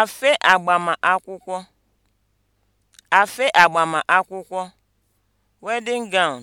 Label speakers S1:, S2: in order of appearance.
S1: afe agbamakwụkwọ afe agbamakwụkwọ (wedding gown)